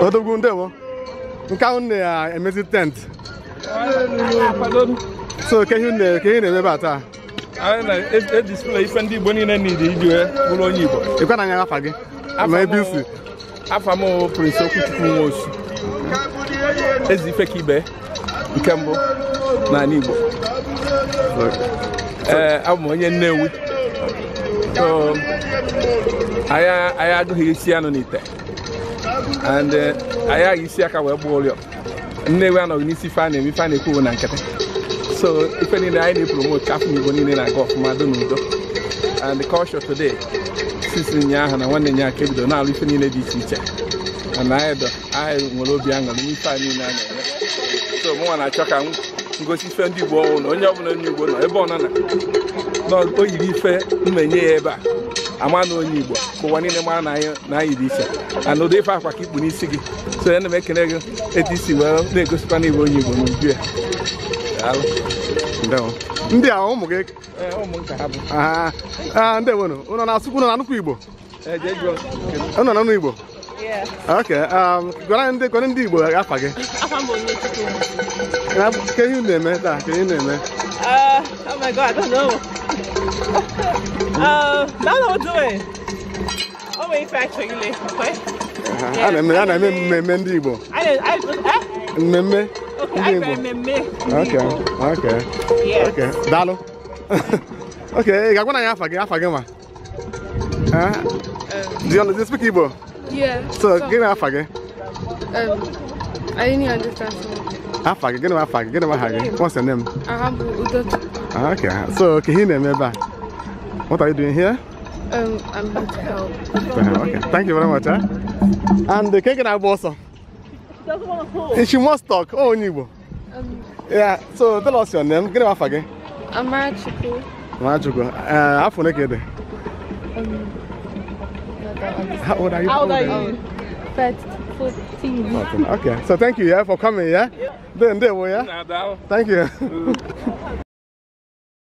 odogwu ndewo nke ahụ na-emezi tent so ke ihe na-eme a taa edisplay ife ndị Igbo niile niile iji wee bụrụ onye Igbo ịkwa na anya afa gị ma ebe isi afa m Okwuchukwu Nwosu ezi ife ka ibe nke mbụ n'ala Igbo ee abụ m onye Nnewi anyị agụghị isi anụ n'ite and anyị agha isi aka wee gbuo ụlọ nnewi anọghị n'isi ife a na-eme ife a na na nkịtị so ife niile anyị na-epromote ka afọ igbo niile na-aga ọfụma do n'udo and culture today sisi aha na nwanne ya nke bido na-alụ ife niile dị iche iche na anyị nwere obi aṅụrị n'ife a niile a na-eme so mụnwa na-achọ ka ngosi ife ndị igbo ọnwụ na onye ọbụla nye igbo nọ ebe ọ nọ na o yiri ife mmenye ya ebe a ama na onye igbo ka ụwa niile mara na anyị dị iche na ụdị ife akwa ka ikpu n'isi gị so ya na m ekele gị etu isi wee na-egosikwa na igbo onye igbo n'uju ya ndị a ụmụ gị eh, Ndị ah, ndewonu ụnọ na-asụkwu ụnọ na nnukwu igbo ụnọ na ụnụ igbo ok um, gwara ndị gwara ndị igbo afa gị ke ihe na-eme taa ke ihe na-eme my god, I don't know. uh, now that we're doing. Oh, wait, actually, okay? A na-eme a na-eme mmemme ndị Igbo. Mmemme ndị Igbo. Okay, okay, okay. Daalụ. Okay, ị ga-agwa na ya afa gị afa gị ma? É? Do you speak Igbo? Yeah. So, gịnị afa gị? I didn't understand. Afa gị, gịnị afa gị, Ah, okay, so me Meba, what are you doing here? Um, I'm here to help. Okay, thank you very much. Eh? And the cake and I also. She doesn't want to talk. She must talk. Oh, Nibo. Um, yeah, so tell us your name. Get off again. I'm Amara Chuku. Uh, how are um, how old are you? How old are you? 14. Okay, so thank you yeah, for coming. Yeah? yeah. Then, there we are. Thank you. Mm.